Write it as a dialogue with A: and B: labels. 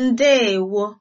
A: ndeewo